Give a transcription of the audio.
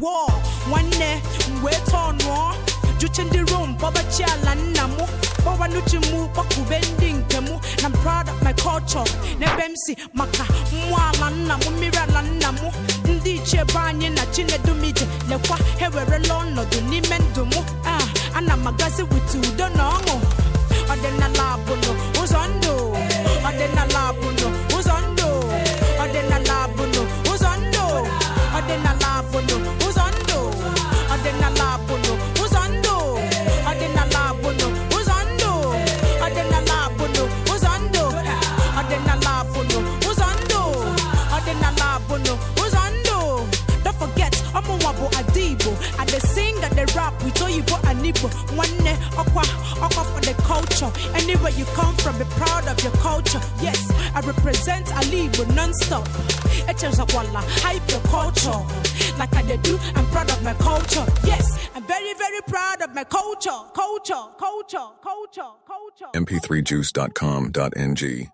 wọl nwanne m wee tọọ nụọ juche ndị rom kpọbachi ala nna m kpọwa n'uche m kpọkube ndị nke na m proud of my culture n'ebe m si maka mmụọ ala nna m mmiri ala nna m ndị ichie be anyị na chinedumije lekwa ha ewerela ọnọdụ n'ime ndụ m a ah, ana m agazi abụnụ ụzọ ndụ ọdịnala ọdịnala abụnụ ụzọ ndụ ọdịnala abụnụ ụzọ don't forget bụ ada i dey sing i dey rap with oyibo and nwanne ọkwa ọkwa the culture anywhere you come from be proud of your culture yes i represent ala igbo non-stop echezakwala hype your culture like I do. I'm proud of my culture. Yes, I'm very, very proud of my culture. Culture, culture, culture, culture, MP3juice.com.ng